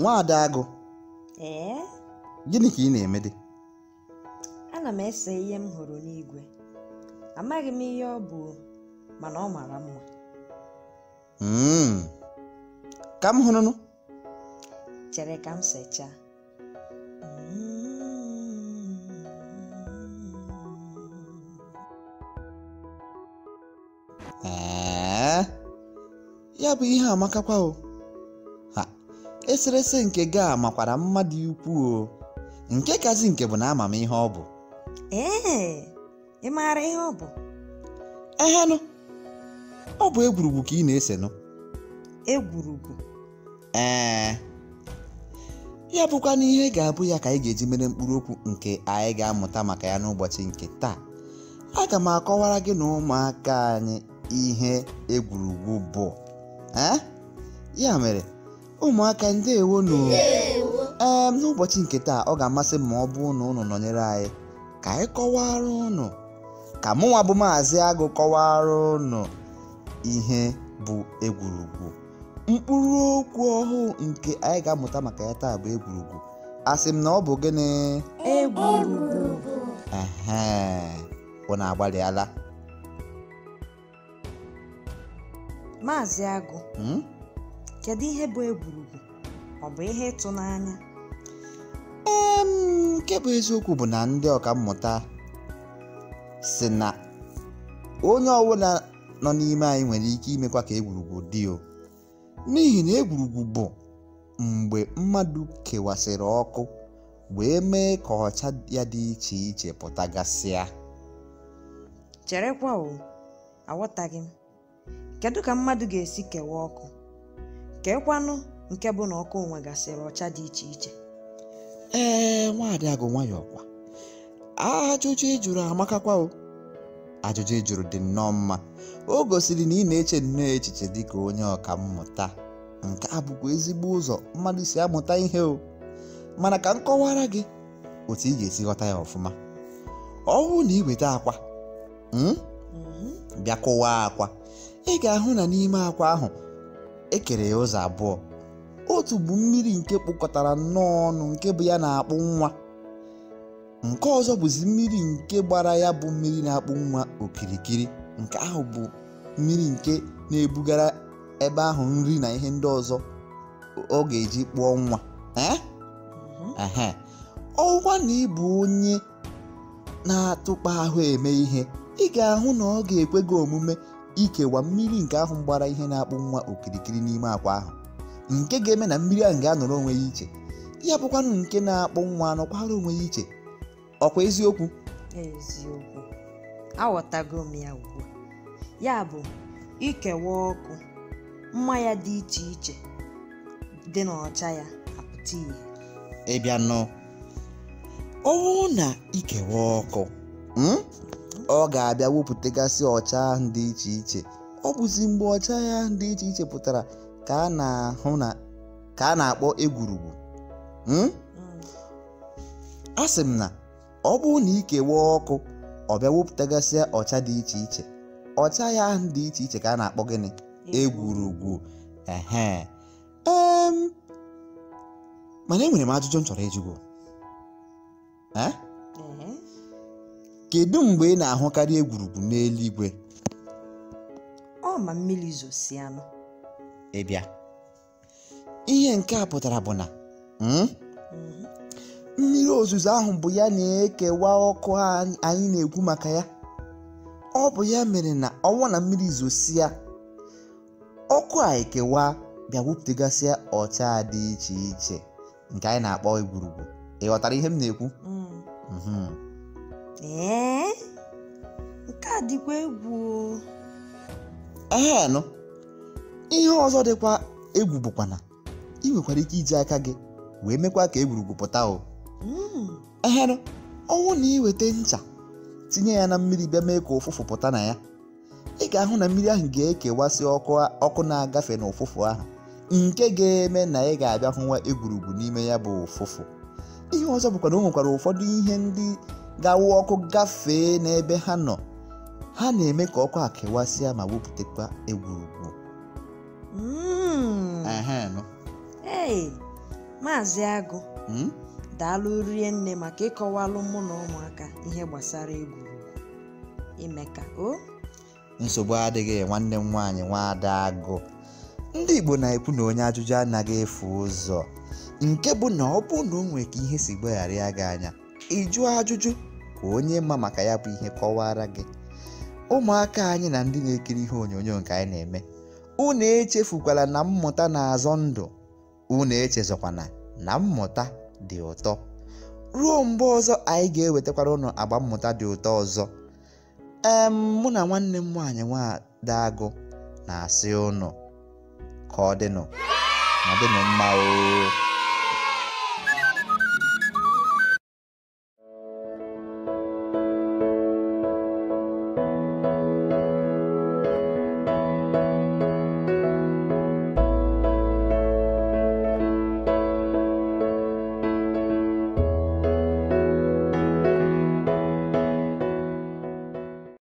nwa agụ ee gịnị ka ị na-eme dị ana m ese ihe m hụrụ n'igwe amaghị m ihe ọ bụ mana ọ mara mma hmm. ka m hụrụnụ chere ka m sechaa hmm. ee ya bụ ihe amakakwa o eserese nke gị a makwara mmadụ ukwuu nke kazi nke bụ na ama m ihe ọ bụ ee ị maara ihe ọ bụ ehenụ ọ bụ egwurugwu ka ị na ese nụ. egwurugwu ee ya bụkwa n'ihe ga-abụ ya ka anyị ga-eji mere mkpụrụ okwu nke anyị ga-amụta maka ya n'ụbọchị nke taa aga m akọwara gị na ụmụaka anyị ihe egwurugwu bụ ya mere Ụmụaka ndewonu! um N'ụbọchị nke taa, ọ ga-amasị m ma ọ bụ na unu nọnyere anyị ka anyị arụ ụnụ ka mụnwa bụ Maazị Agụ kọwaara ụnụ ihe bụ egwurugwu. Mkpụrụ okwu ọhụụ nke anyị ga-amụta maka ya taa bụ egwurugwu. Asị m na ọ bụ gịnị? Egwurugwu. na agbalịala? Maazị Agụ. Hmm? kedu ihe bụ egwurugwu ọ bụ ihe ịtụnanya nke bụ eziokwu bụ na ndị mmụta, si na onye ọbụla nọ n'ime anyị nwere ike imekwa ka egwurugwu dị o n'ihi na egwurugwu bụ mgbe mmadụ kewasịrị ọkụ wee mee ka ọcha ya dị iche iche pụtagasịa cherekwa o aghọtaghị m kedu ka mmadụ ga-esi kewaa ọkụ nke kwanụ nke bụ na ọkụ onwe gasịrị ọcha dị iche iche ee nwaadị agụ nwayọọ kwa ajụjụ ịjụrụ amakakwa o ajụjụ ịjụrụ dị nnọọ mma o gosiri na ị na-eche nnọọ echiche dị ka onye ọka mmụta nke a ezigbo ụzọ mmadụ si amụta ihe o mana ka m kọwara gị otu ị ga-esi ghọta ya ọfụma ọwụ na iweta akwa hmm, mhm. bịa kụwaa akwa ị ga-ahụ na n'ime akwa ahụ ekere ya ụzọ abụọ otu bụ mmiri nke kpụkọtara nnọọ ọnụ nke bụ ya na-akpụ nwa nke ọzọ bụzi mmiri nke gbara ya bụ mmiri na-akpụ nwa okirikiri nke ahụ bụ mmiri nke na-ebugara ebe ahụ nri na ihe ndị ọzọ ọ ga-eji kpụọ nwa mm-hmm. ọwa na ịbụ onye na-atụkpa ahụ eme ihe ị ga-ahụ na ọ ga-ekwe gị omume ikewa mmiri nke ahụ gbara ihe na-akpụ nwa okirikiri n'ime akwa ahụ nke ga-eme na mmiri ahụ ga-anọrọ onwe ya iche ya bụkwanụ nke na-akpụ nwa anọkwara onwe ya iche ọkwa eziokwu eziokwu aghọtago m ya ugbu ya bụ ikewa ọkụ mmanya dị iche iche dị n'ọcha ya apụta ihe ịbịa nọ na ikewa ọkụ hmm? ọ ga-abịa wepụtagasị ọcha ahụ dị iche iche ọ bụzi mgbe ọcha ya dị iche iche pụtara ka a na-akpọ egwurugwu hmm? a sị m na ọ bụrụ na ikewa ọkụ ọ bịa wepụtagasị ọcha dị iche iche ọcha ya ahụ dị iche iche ka a na-akpọ gịnị egwurugwu ehe mana enwere m ajụjụ m chọrọ ịjụgo Kedu mgbe ị na-ahụkarị egwurugwu n'eluigwe? Ọ ma mmiri Ị bịa. Ihe nke a pụtara bụ na hmm? mhm. mmiri ozuzo ahụ bụ ya na-ekewa ọkụ anyị na-ekwu maka ya. Ọ bụ ya mere na ọnwa na mmiri zosia, ọkụ a ekewa bịa wepụtagasịa ọcha dị iche iche nke anyị na-akpọ egwurugwu. Ị ghọtara ihe m na-ekwu? Mm. Mhm. ee nke a dịkwa egwu ehenụ ihe ọzọ dịkwa egwu bụkwana ị nwekwara ike iji aka gị wee mekwa ka egwurugwu pụta o hmm. ehenụ ọnwụ na iweta ncha tinye ya na mmiri bịa mee ka ụfụfụ pụta na ya ị ga-ahụ na mmiri ahụ ga-ekewasị ọkụ na-agafe na ụfụfụ ahụ nke ga-eme na ị ga-abịa hụwa egwurugwu n'ime ya bụ ụfụfụ ihe ọzọ bụkwa na o nwekwara ụfọdụ ihe ndị gawa ọkụ gafee n'ebe ha nọ ha na-eme ka ọkụ a kewasịa ma wepụtakwa egwurugwu hmm. maazị agụ hmm? daalụ rie nne maka ịkọwalụ mụ na ụmụaka ihe gbasara egwurugwu ime ka o nsogbu adịghị nwanne m nwaanyị nwada agụ ndị igbo na-ekwu na onye ajụjụ anaghị efu ụzọ nke bụ na ọ bụ na o nwere ka ihe si gbaghara ya gị anya ịjụ ajụjụ ka onye ma maka ya bụ ihe kọwara gị ụmụaka anyị na ndị na-ekiri ihe onyonyo nke anyị na-eme unu echefukwala na mmụta na-azọ ndụ unu echezọkwana na mmụta dị ụtọ ruo mgbe ọzọ anyị ga-ewetakwara ụnụ agba mmụta dị ụtọ ọzọ ee mụ na nwanne m nwaanyị agụ na-asị ụnụ ka ọ dịnụ ọ dịnụ mma